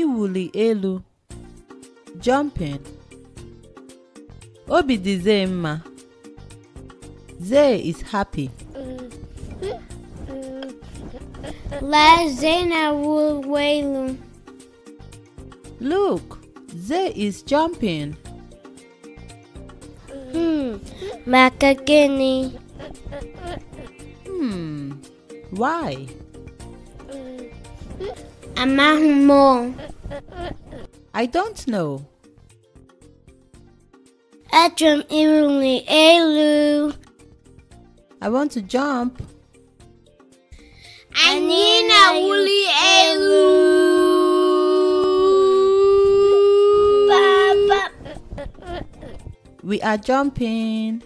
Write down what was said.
iwuli elu jumping obi dị zee mma zee is happy lee zee na-awụlụ elu look zee is jumping hmm maka gịnị hmm why amaghị m I don't know. I Atrum irumli elu. I want to jump. Anina wuli elu. We are jumping.